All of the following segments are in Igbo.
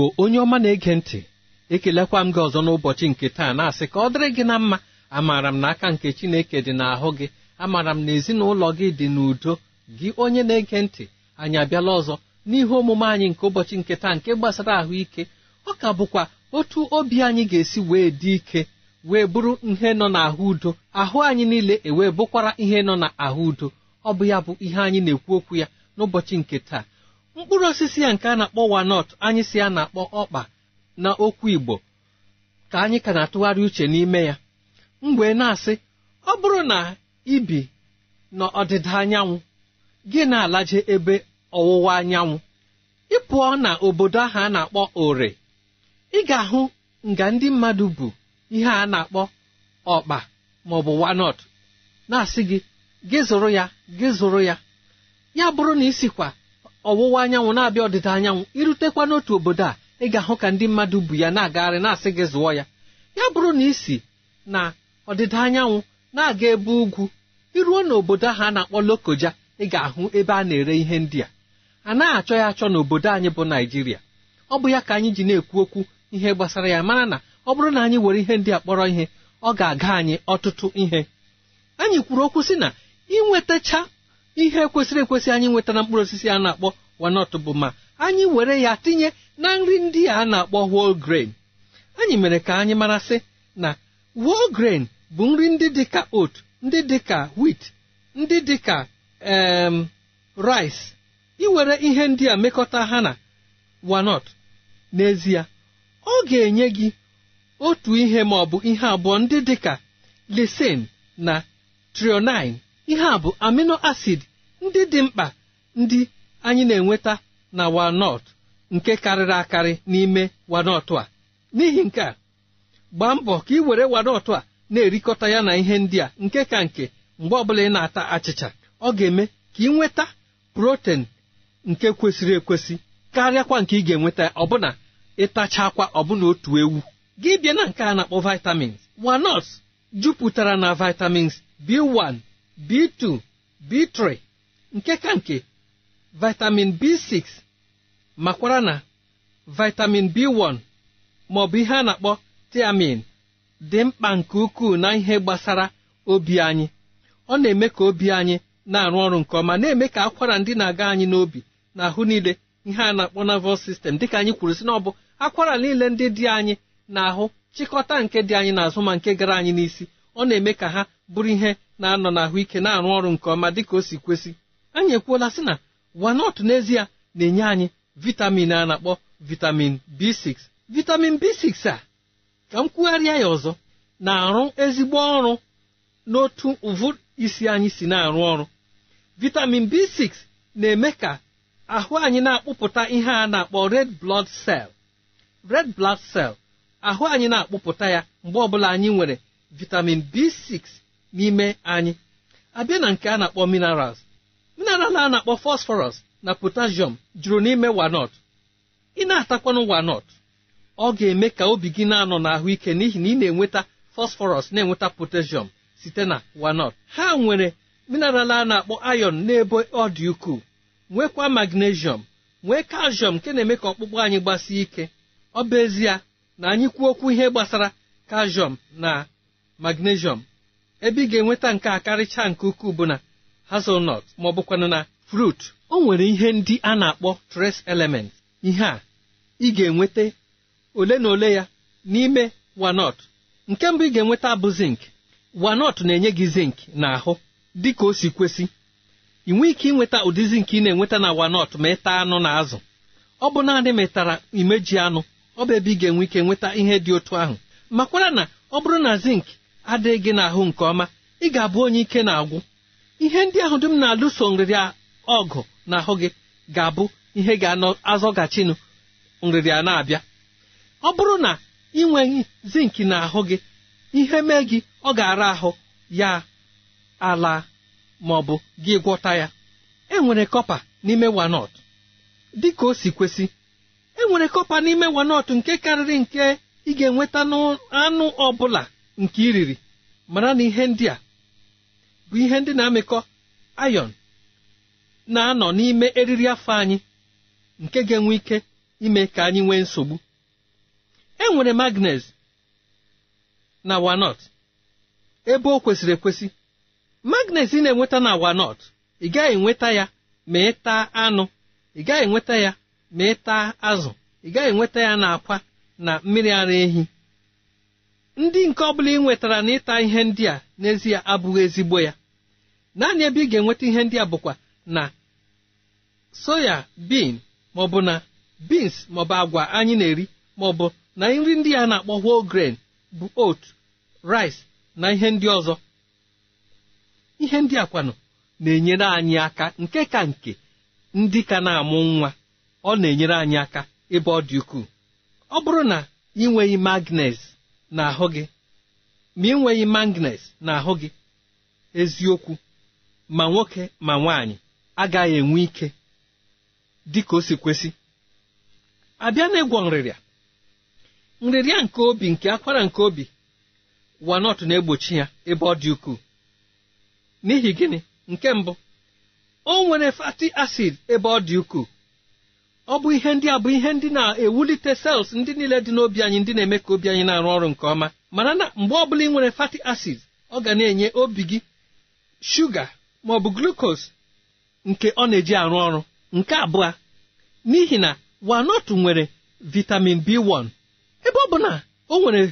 igbo onye ọma na-ege ntị ekelekwa m gị ọzọ n'ụbọchị nke taa na-asị ka ọ dịrị gị na mma amaara m na aka nke chineke dị n'ahụ gị amaara m na ezinụlọ gị dị n'udo gị onye na-ege ntị anyị abịala ọzọ n'ihe omume anyị nke ụbọchị nke taa nke gbasara ahụike ọ ka bụkwa otu obi anyị ga-esi wee dị ike wee bụrụ ihe nọ n'ahụ udo ahụ anyị niile ewee bụkwara ihe nọ n'ahụ udo ọ bụ ya bụ ihe anyị na-ekwu okwu ya n'ụbọchị nke taa mkpụrụ osisi ya nke a na-akpọ wanọt anyị si ya na-akpọ ọkpa na okwu igbo ka anyị ka na-atụgharị uche n'ime ya mgbe na-asị ọ bụrụ na ibi n'ọdịda anyanwụ gị na-alaje ebe ọwụwa anyanwụ ị pụọ na obodo ahụ a na-akpọ ore ị ga-ahụ nga ndị mmadụ bụ ihe a na-akpọ ọkpa maọbụ wanọt na-asị gị gị zụrụ ya gị zụrụ ya ya bụrụ na isikwa ọwụwa anyanwụ na-abịa ọdịda anyanwụ irutekwa n'otu obodo a ị ga-ahụ ka ndị mmadụ bu ya na-agagharị na-asị gị zụọ ya ya bụrụ na isi na ọdịda anyanwụ na-aga ebe ugwu iruo n'obodo ahụ a na-akpọ Lokoja ị ga-ahụ ebe a na-ere ihe ndị a a naghị achọ ya achọ n'obodo anyị bụ Naịjirịa ọ bụ ya ka anyị ji na-ekwu okwu ihe gbasara ya mara na ọ bụrụ na anyị were ihe ndị a kpọrọ ihe ọ ga-aga anyị ọtụtụ ihe anyị kwuru okwu sị na ịnwetacha ihe kwesịrị ekwesị anyị nweta na mkpụrụ osisi a na-akpọ wanọt bụ ma anyị were ya tinye na nri ndị a na-akpọ whole grain anyị mere ka anyị marasị na whole bụ nri ndị dịka otu ndị dịka wit ndị dịka em rice iwere ihe ndị a mekọta ha na wanọt n'ezie ọ ga-enye gị otu ihe ma bụ ihe abụọ ndị dịka lisin na trionine ihe a bụ amino acid ndị dị mkpa ndị anyị na-enweta na walnut nke karịrị akarị n'ime walnut a n'ihi nke a gbaa mbọ ka ị were walnut a na-erikọta ya na ihe ndị a nke ka nke mgbe ọbụla ị na-ata achịcha ọ ga-eme ka ị nweta protein nke kwesịrị ekwesị karịakwa nke ị ga-enweta ọbụna ịtachakwa ọbụna otu ewu gị bịa na nke a na-akpọ vitamins walnuts jupụtara na vitamins b b2 b3 nke ka nke vitamin b6 makwara na vitamin b1 ma ọ bụ ihe a na-akpọ tiamin dị mkpa nke ukwuu na ihe gbasara obi anyị ọ na-eme ka obi anyị na-arụ ọrụ nke ọma na-eme ka akwara ndị na-aga anyị n'obi na ahụ niile ihe a na-akpọ nervous system dịka anyị kwuru si na ọ bụ akwara niile ndị dị anyị na ahụ chịkọta nke dị anyị n'azụ ma nke gara anyị n'isi ọ na-eme ka ha bụrụ ihe na-anọ n'ahụike na-arụ ọrụ nke ọma dịka o si kwesị anyị ekwuola sị na wanọt n'ezie na-enye anyị vitamin a na-akpọ vitamin b6 vitamin b6 a ka m kwugharịa ya ọzọ na-arụ ezigbo ọrụ n'otu ụvụ isi anyị si na-arụ ọrụ vitamin b6 na-eme ka ahụ anyị na-akpụpụta ihe a na-akpọ red blood cell red blood cell ahụ anyị na-akpụpụta ya mgbe ọbụla anyị nwere vitamin b6 n'ime anyị abịa na nke a na-akpọ minerals mineral a na-akpọ fosphorus na potassium juru n'ime wanot ị na-atakwanụ wanot ọ ga-eme ka obi gị na-anọ ike n'ihi na ị na-enweta fosphorus na-enweta potassium site na wanot ha nwere mineral a na-akpọ iron n'ebe ọ dị ukwuu nwekwa magnesium nwee calcium nke na-eme ka ọkpụkpụ anyị gbasie ike ọ bụ ezie na anyị kwuo okwu ihe gbasara calcium na magnesium ebe ị ga-enweta nke a karịchaa nke ukwuu bụ na hazelnut ma ọ na fruit o nwere ihe ndị a na-akpọ trace element ihe a ị ga-enweta ole na ole ya n'ime walnut nke mbụ ị ga-enweta bụ zink wanot na-enye gị zink na dị ka o si kwesị ị nwee ike ịnweta ụdị zink ị na-enweta na wanọt ma ịta anụ na azụ ọ bụ naanị metara imeji anụ ọ bụ ebe ị ga-enwe ike nweta ihe dị otu ahụ makwara na ọ bụrụ na zink. adịghị gị n'ahụ nke ọma ị ga-abụ onye ike na-agwụ ihe ndị ahụ dum na-alụso nrịrịa ọgụ n'ahụ gị ga-abụ ihe ga azọgachinụ nrịrịa na-abịa ọ bụrụ na ị nweghị zinki n'ahụ gị ihe mee gị ọ ga-ara ahụ ya ala ma ọ bụ gị gwọta ya enwere kọpa n'ime wanọt dị ka o si kwesị enwere kọpa n'ime wanọt nke karịrị nke ị ga-enweta n'anụ ọ bụla nke iriri mara na ihe ndị a bụ ihe ndị na-amịkọ ayon na-anọ n'ime eriri afọ anyị nke ga-enwe ike ime ka anyị nwee nsogbu e nwere magnez na wanọt ebe o kwesịrị ekwesị magnez ị na-enweta na wanọt ị gaghị enweta ya ma ị taa anụ ị gaghị enweta ya ma ị taa azụ ị gaghị enweta ya na akwa na mmiri ara ehi ndị nke ọbụla ị nwetara na ịta ihe ndị a n'ezie abụghị ezigbo ya naanị ebe ị ga-enweta ihe ndị a bụkwa na soya bin maọbụ na bins maọbụ agwa anyị na-eri maọbụ na nri ndị a na-akpọ whole grain bụ ot rice na ihe ndị ọzọ ihe ndị a kwanụ na-enyere anyị aka nke ka nke ndị ka na-amụ nwa ọ na-enyere anyị aka ebe ọ dị ukwuu ọ bụrụ na ị nweghị magnes n'ahụ gị ma ị nweghị magnet n'ahụ gị eziokwu ma nwoke ma nwaanyị agaghị enwe ike dị ka o si kwesị abịa egwọ nrịrịa nrịrịa nke obi nke akwara nke obi wanọt na-egbochi ya ebe ọ dị ukwuu n'ihi gịnị nke mbụ o nwere fatty acid ebe ọ dị ukwuu ọ bụ ihe ndị a bụ ihe ndị na-ewulite sels ndị niile dị n'obi anyị ndị na-eme ka obi anyị na-arụ ọrụ nke ọma mara na mgbe ọbụla ị nwere fatty acid ọ ga na-enye obi gị shuga ma ọ bụ glukos nke ọ na-eji arụ ọrụ nke abụọ n'ihi na wanọtụ nwere vitamin b1 ebe ọ bụ na o nwere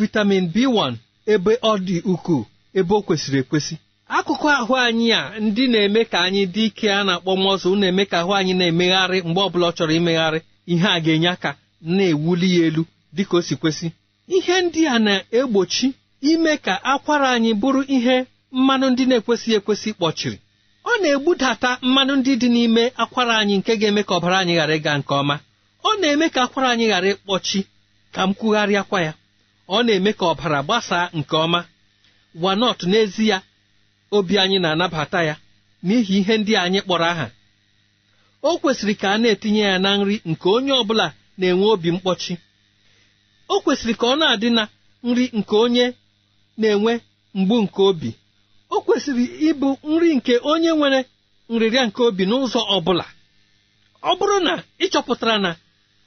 vitamin b1 ebe ọ dị ukwuu ebe o kwesịrị ekwesị akụkụ ahụ anyị a ndị na-eme ka anyị dị ike a na-akpọ mọzụ na-eme ka ahụ anyị na-emegharị mgbe ọbụla ọ chọrọ imegharị ihe a ga-enye aka na-ewuli ya elu dịka o si kwesị ihe ndị a na-egbochi ime ka akwara anyị bụrụ ihe mmanụ ndị na-ekwesịghị ekwesị kpọchiri ọ na-egbudata mmanụ ndị dị n'ime akwara anyị nke ga-eme ka ọbara anyị ghara ịga nke ọma ọ na-eme ka akwara anyị ghara ịkpọchi ka m kwugharịakwa ya ọ na-eme ka ọbara gbasaa nke ọma wanọt ya obi anyị na-anabata ya n'ihi ihe ndị anyị kpọrọ aha o kwesịrị ka a na-etinye ya na nri nke onye ọ bụla na-enwe obi mkpọchi o kwesịrị ka ọ na-adị na nri nke onye na-enwe mgbu nke obi o kwesịrị ịbụ nri nke onye nwere nrịrịa nke obi n'ụzọ ọ bụla ọ bụrụ na ị chọpụtara na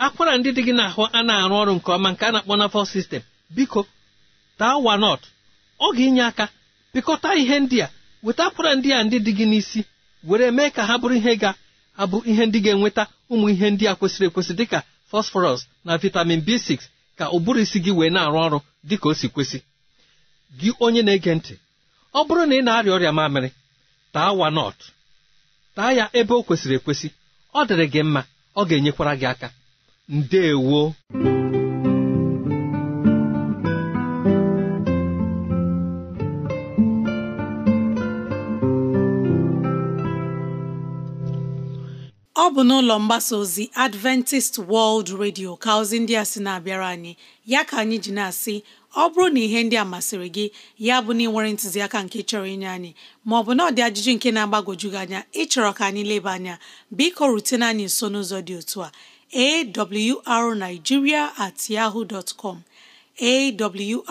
akwara ndị dị gị n'ahụ a na-arụ ọrụ nke ọma nke a na-akpọ nafọl sistem biko taa wanọt ọ ga-inye aka pịkọta ihe ndị a wetakwara ndị a ndị dị gị n'isi were mee ka ha bụrụ ihe ga-abụ ihe ndị ga-enweta ụmụ ihe ndị a kwesịrị ekwesị dịka fosforọs na vitamin b6 ka ụbụrụ isi gị wee na-arụ ọrụ dịka o si kwesị gị onye na-ege ntị ọ bụrụ na ị na-arịa ọrịa mamịrị taa wanọt taa ya ebe o kwesịrị ekwesị ọ dịrị gị mma ọ ga-enyekwara gị aka ndewo bụ n'ụlọ mgbasa ozi Adventist World Radio ka ozi ndị a sị na-abịara anyị ya ka anyị ji na-asị ọ bụrụ na ihe ndị a masịrị gị ya bụ na ịnwere ntụziaka nke chọrọ inye anyị ma ọ bụ na ajụjụ nke na-agbagwoju gị anya ịchọrọ ka anyị leba anya biko rutena anyị nso n'ụzọ dị otu a arigiria at yahoo dot com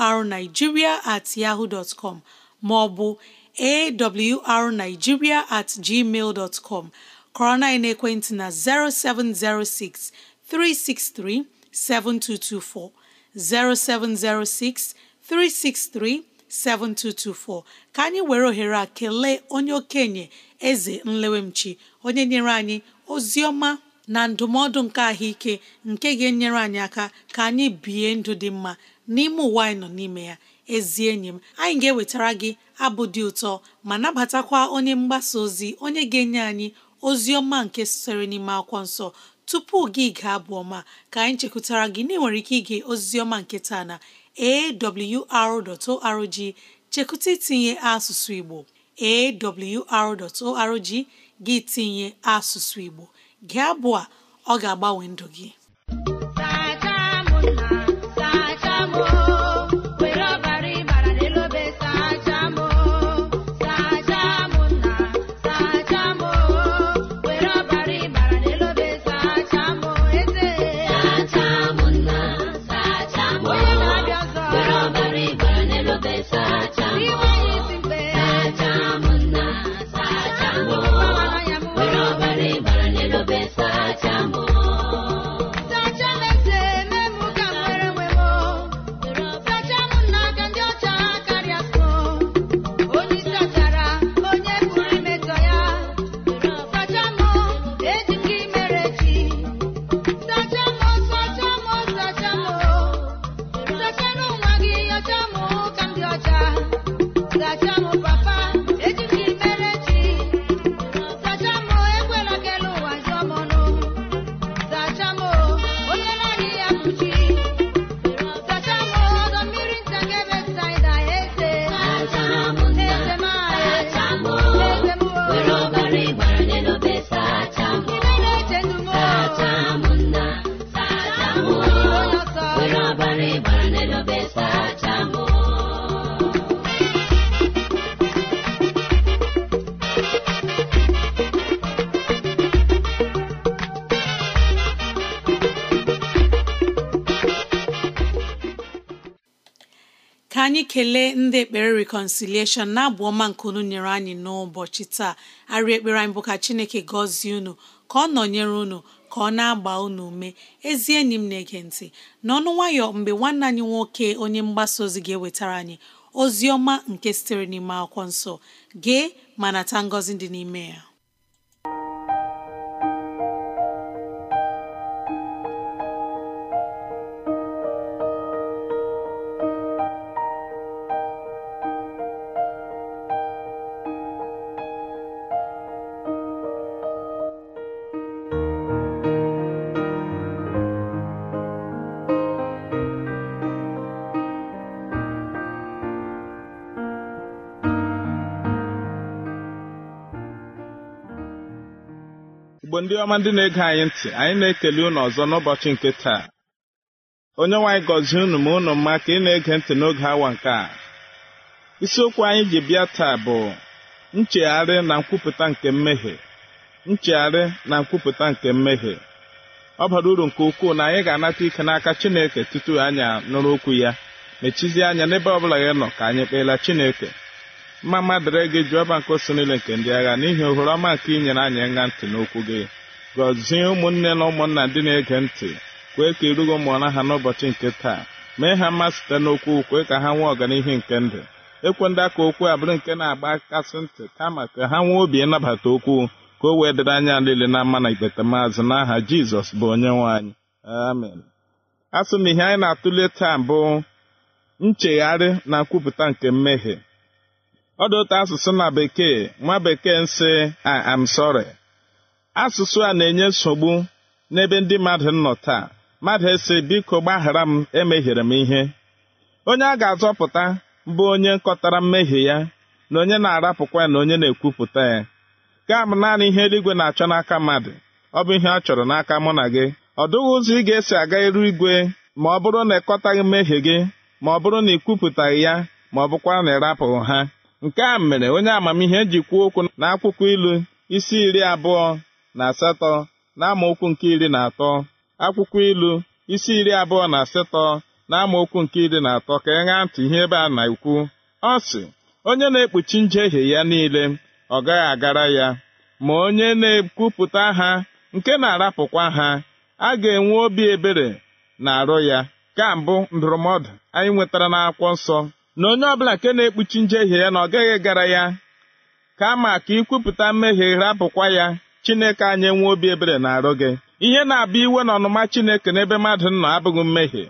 awrnigeria at yahoo dot com ma ọ bụ at gmail dot com kọrọ na ekwentị na 0706 363 7224 0706 363 7224 ka anyị were ohere a kelee onye okenye eze nlewemchi onye nyere anyị ozi ọma na ndụmọdụ nke ahụike nke ga-enyere anyị aka ka anyị bie ndụ dị mma n'ime ụwa anyị nọ n'ime ya ezi enyi m anyị ga-ewetara gị abụ dị ụtọ ma nabatakwa onye mgbasa ozi onye ga-enye anyị ozi ọma nke sitere n'ime akwụkwọ nsọ tupu gị gaa abụ ọma ka anyị chekwutara gị na nwere ike ige ozi nke taa na awr.org chekwụta itinye asụsụ Igbo awr.org gị tinye asụsụ Igbo gị abụọ ọ ga-agbanwe ndụ gị anyị kelee ndị ekpere reconciliation na-abụ ọma nke unu nyere anyị n'ụbọchị taa arị ekpere anyị bụ ka chineke gọzie unu ka ọ nọnyere unu ka ọ na-agba unu ume ezi enyi m na-ege ntị n'ọnụ nwayọ mgbe nwanne anyị nwoke onye mgbasa ozi ga-ewetara anyị ozi ọma nke sitere n'ime akwụkwọ nsọ gee ma nata ngọzi dị n'ime ya igbo ndị ọma ndị na-ege anyị ntị anyị na-ekele ụnụ ọzọ n'ụbọchị nke taa onye nwaanyị gọzie unu ma ụnụ mma ka ị na-ege ntị n'oge awa nke a isiokwu anyị ji bịa taa bụ nchegharị na nkwupụta nke mmehie nchegharị na nkwupụta nke mmehie ọ bara uru nke ukwuu na anyị ga-anata ike n'aka Chineke tutu anya nụrụ okwu ya mechizie anya n'ebe ọ bụla ya nọ ka anyị kpeela Chineke mma dịrị gị ọba nke osi niile nke ndị agha n'ihi ohere ọma nke inyere anyị nga ntị n'okwu gị gọzie ụmụnne na ụmụnna ndị na-ege ntị kwee ka irugo mụọra ha n'ụbọchị nke taa mee ha mma site n'okwu kwee ka ha nwee ọganihu nke ndụ ekwe ndị aka okwu abụrụ nke na-agba kasị ntị kama ka ha nwee obi ịnabata okwu ka o wee dịrị anya niile na mma na ikpeta maazị n'aha jizọs bụ onye nwe anyị amen a sị na ihe anyị na-atụle taa bụ nchegharị na nkwupụta nke mmehie ọ dị otu asụsụ na bekee nwa bekee nsị I am sorry asụsụ a na-enye nsogbu n'ebe ndị mmadụ nọ taa mmadụ esi biko gbaghara m emehiere m ihe onye a ga-azọpụta bụ onye nkọtara mmehie ya na onye na-arapụkwa ya na onye na-ekwupụta ya gaa m naanị ihe eluigwe na-achọ n'aka mmadụ ọ bụ ihe ọ chọrọ n'aka mụ na gị ọ dụghị ụzọ ị ga-esi aga iru igwe ma ọ bụrụ na ịkọtaghị mmehie gị ma ọ bụrụ na ị kwupụtaghị ya ma ọ bụkwara na ịrapụghị ha nke a mere onye amamihe ji kwuo okwu n'akwụkwọ ilu isi iri abụọ na asatọ na amaokwu nke iri na atọ akwụkwọ ilu isi iri abụọ na asatọ na nke iri na atọ ka e ntị ihe ebe a na-ekwu ọ sị onye na-ekpuchi njehie ya niile ọ gaghị agara ya ma onye na-ekwupụta ha nke na-arapụkwa ha a ga-enwe obi ebere na arụ ya ka mbụ ndụrụmọdụ anyị nwetara n'akwụkwọ nsọ na onye ọbụla nke na-ekpuchi njehie ya na ọ gaghị gara ya kama ka ikwupụta mmehie rapụkwa ya chineke anyị nwee obi ebere na-arụ gị ihe na-abụ iwe na ọnụma chineke n'ebe mmadụ nọ abụghị mmehie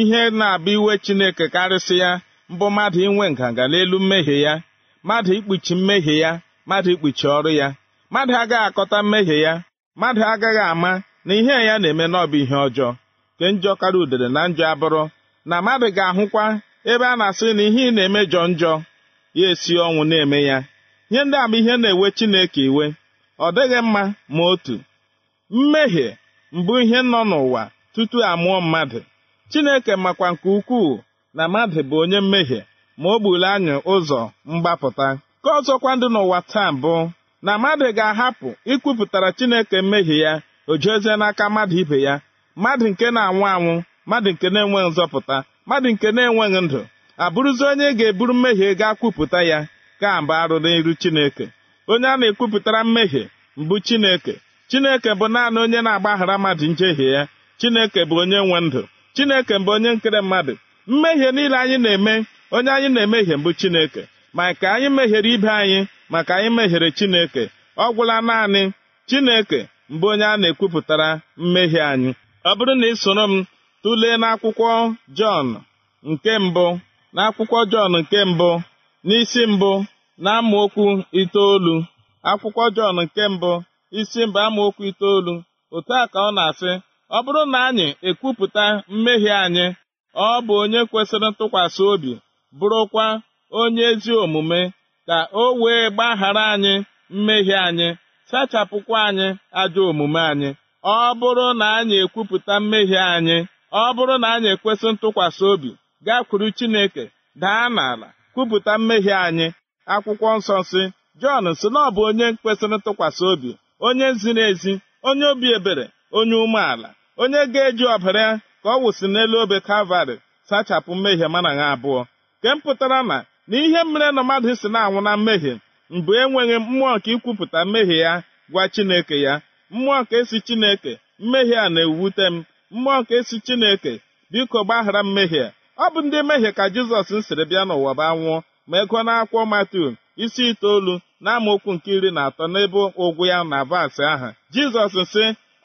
ihe na-abụ iwe chineke karịsị ya mbụ mmadụ inwe nganga n'elu mmehie ya mmadụ ikpuchi mmehie ya mmadụ ikpuchi ọrụ ya mmadụ agaghị akọta mmehie ya mmadụ agaghị ama na ihe ya na-eme n'ọbụ ihe ọjọọ nke njọ karịa udere na njọ abụrụ na mmadụ ga-ahụkwa ebe a na-asịrị na ihe ị na-eme jọ njọ ya esi ọnwụ na-eme ya nye ndị ama ihe na-ewe Chineke iwe ọ dịghị mma ma otu mmehie mbụ ihe nọ n'ụwa tutu amụọ mmadụ Chineke makwa nke ukwuu na mmadụ bụ onye mmehie ma o gburu anyị ụzọ mgbapụta ka ọzọkwa ndị n'ụwa taa bụ na mmadụ ga-ahapụ ikwupụtara Chineke mmehie ya o jezie n'aka mmadụ ibe ya mmadụ nke na-anwụ anwụ mmadụ nke na-enwe nzọpụta mmadụ nke na-enweghị ndụ abụrụzi onye ga-eburu mmehie gaa kwupụta ya ka mba arụ n'iru chineke onye a na-ekwupụtara mmehie mbụ chineke chineke bụ naanị onye na-agbaghara mmadụ njehie ya chineke bụ onye nwe ndụ chineke bụ onye nkere mmadụ mmehie niile anyị na-eme onye anyị na-emehie mbụ chineke ma ka anyị mehiere ibe anyị maka anyị mehiere chineke ọ gwụla naanị chineke mbụ onye a na-ekwupụtara mmehie anyị ọ bụrụ na ị soro m tụlee n'akwụkwọ Jọn nke mbụ n'akwụkwọ Jọn nke mbụ n'isi mbụ na amaokwu itoolu akwụkwọ Jọn nke mbụ isi mbụ amaokwu itoolu otu a ka ọ na-asị ọ bụrụ na anyị ekwupụta mmehie anyị ọ bụ onye kwesịrị ntụkwasị obi bụrụkwa onye ezi omume ka o wee gbaghara anyị mmehie anyị sachapụkwa anyị ajọ omume anyị ọ bụrụ na anyị ekwupụta mmehie anyị ọ bụrụ na anyị ekwesị ntụkwasị obi gaa kwuru Chineke daa n'ala kwupụta mmehie anyị akwụkwọ nsọ si Jọn si na ọ bụ onye kwesịrị ntụkwasị obi onye ziri ezi onye obi ebere onye umeala onye ga-eji ọbara ya ka ọ wụsị n'elu obe Kalvarị sachapụ mmehie mana ha abụọ nke mpụtara na na ihe mere na mmadụ si na-anwụ na mmehie mbụ enweghị mmụọ nke ikwupụta mmehie ya gwa Chineke ya mmụọ nke si Chineke mmehie a na-ewute m mmụọ nke si chineke biko gbaghara mmehie ọ bụ ndị mmehie ka jizọs siri bịa n'ụwa bụ anwụọ ma ego n'akwụkwọ matiu isi itoolu na nke iri na atọ n'ebe ụgwụ ya na vaasị ahụ jizọs sị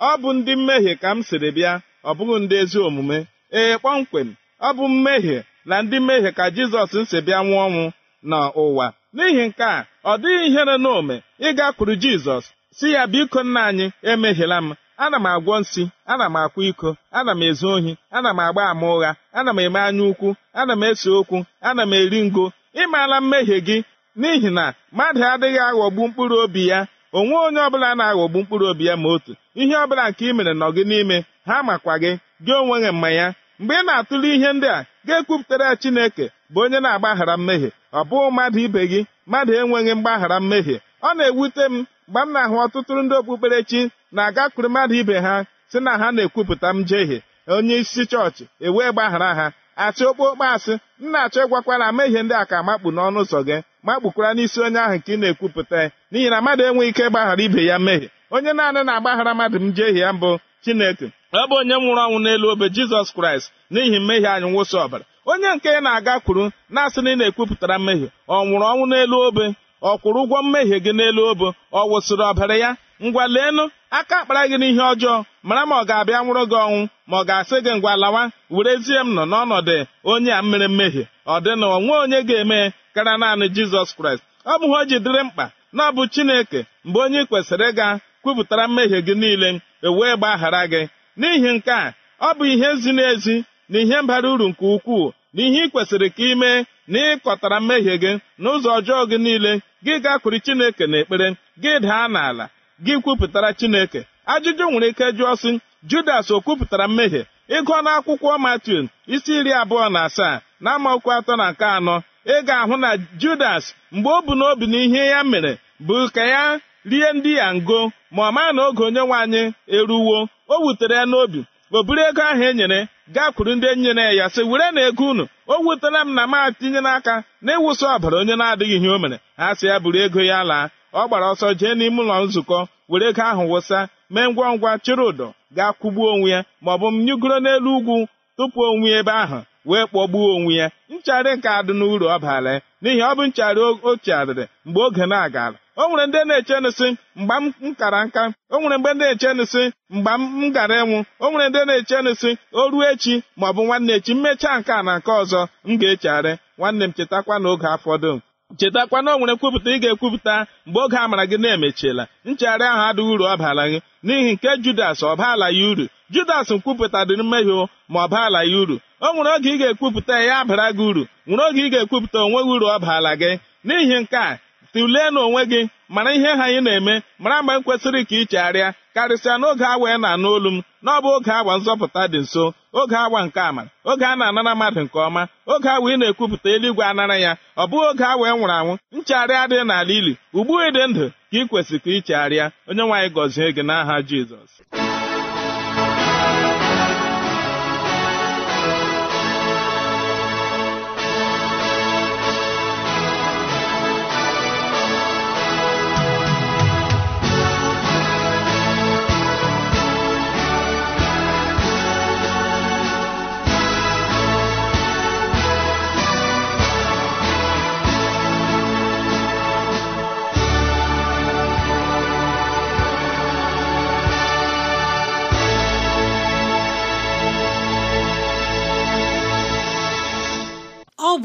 ọ bụ ndị mmehie ka m siri bịa ọ bụghị ndị ezi omume ee kpọmkwem ọ bụ mmehie na ndị mmehie ka jizọs si bịa nwụọ ọnwụ n'ụwa n'ihi nke a ọ dịghị ihere n'ome ịgakwuru jizọs si ya biko nna anyị emehiela m ana m agwọ nsị ana m akwa iko ana m ezu ohi ana m agba ama ụgha ana m eme anya ukwu ana m ese okwu ana m eri ngo ịmaala mmehie gị n'ihi na mmadụ adịghị aghọgbu mkpụrụ obi ya onwe onye ọbụla na-aghọgbu mkpụrụ obi ya ma otu ihe ọbụla nke ị mere nọ gị n'ime ha makwa gị gị onwe gị mma ya mgbe ị na-atụle ihe ndị a ga-ekwupụtara ya Chineke bụ onye na-agbaghara mmehie ọ bụghị mmadụ ibe gị mmadụ enweghị mgbaghara mmehie ọ na-ewute m mgbe m na-ahụ ọtụtụ ndị okpukperechi na-agakwuru mmadụ ibe ha si na ha na-ekwupụta m jehie onye isi chọọchị ewee gbaghara ha achị okpukpe asị m na-achọ ịgwakwara amehie ndị a ka makpu n'ọnụ ụzọ gị makpukwara n'isi onye ahụ nke ị na-ekwupụta n'ihi na mmadụ enweghị ike ịgbaghara ibe ya mmehie onye naanị na-agbaghara mmadụ m jehie ya mbụ chineke ọ bụ onye nwụrụ ọnwụ n'elu obe jizọs kraịst n'ihi mmehie anyị nwụsị ọbara onye nke na agakwuru na-asị na ị na-ekwupụtara mmehie ọ nwụrụ ọnwụ n'elu obe ọ kwụrụ ụgwọ mmehie gị n'elu obo ọ wụsịrị ọbara ya ngwa leenụ aka akpara gị n'ihe ọjọọ mara ma ọ ga-abịa nwụrụ gị ọnwụ ma ọ ga-asị gị ngwa lawa werezie m nọ n'ọnọdụ onye a mmere mmehie ọ dị na onwe onye ga-eme kara naanị jizọs kraịst ọ bụghị o ji dịrị mkpa na ọ bụ chineke mgbe onye ị kwesịrị ịga kwupụtara mmehie gị niile ewee gbaghara gị n'ihi nke a ọ bụ ihe zi ezi na ihe mbara uru nke ukwuu na ihe ị kwesịrị ka ị mee n'ịkọtara mmehie gị n'ụzọ ọjọọ gị niile gị gakwuru chineke na ekpere gị daa n'ala gị kwupụtara chineke ajụjụ nwere ike jụọ sị judas o kwupụtara mmehie ịgụọ akwụkwọ matiu isi iri abụọ na asaa na amaokwu atọ na nke anọ ị ga-ahụ na judas mgbe o bu n'obi na ihe ya mere bụ ka ya rie ndị ya ngo ma ọ maa na oge onye nwe anyị eruwo o wutere ya n'obi o buru ego ahụ e nyere gakwuru ndị enyi na ya sị were na ego unu o wutela m na m atinye n'aka na ịwụsị ọbara onye na-adịghị ihe o mere ha sị ya buru ego ya laa ọ gbara ọsọ jee n'ime ụlọ nzukọ were ego ahụ wụsa mee ngwa ngwa chịrị ụdọ ga kwụgbuo onwe ya ma ọ bụ m nyugoro n'elu ugwu tupu onwe ebe ahụ wee kpọgbuo onwe ya nchara nke adị n'uru ọ baala n'ihi ọ bụ nchara o chigharịrị mgbe oge na-agara o nwere ndị na-eche nsi mgbe m kara nka o nwere mgbe ndị na-eche nsị mgbe m gara enwu o nwere ndị na-eche nsị o ruo echi ma ọ bụ nwanne echi mmechaa nke a na nke ọzọ m ga-echegharị nwanne m chetakwa na oge afọdụ chetakwa na o nwere nkwupụta ị ga-ekwupụta mgbe oge amara gị na-emechiela nchegharị ahụ adịghị uru ọ ala gị n'ihi nke judas ọ baala ya uru judas nkwupụta dị mmehie ma ọ baala ya uru o nwere oge ị ga-ekwupụta ya abara gị uru nwere oge ị ga-ekwupụta onweghị uru ọ baala gị n'ihi nke a tụlee n'onwe gị mara ihe ha anyị na-eme mara mgbe m kwesịrị ka ị chegharịa karịsịa n'oge awa ị na-anụ olu m na ọ bụ oge awa nzọpụta dị nso oge awa nke ama oge a na-anara mmadụ nke ọma oge awa ị na-ekwupụta eluigwe anara ya ọ bụghị oge awa ị e nwụrụ anwụ nchegharị adịghị n'ala ili ugbu ị dị ndụ ka ị kwesịrị ka ị chegharịa onye nwaanyị gọzie gị n'aha Jizọs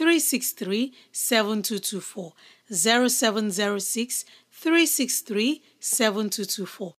363 7224 0706 363 7224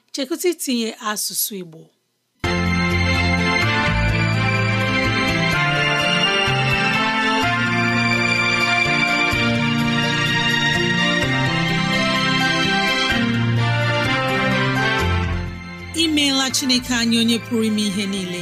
chekụta itinye asụsụ Igbo imeela Chineke anyị onye pụrụ ime ihe niile